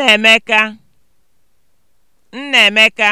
Nnaemeka Nnaemeka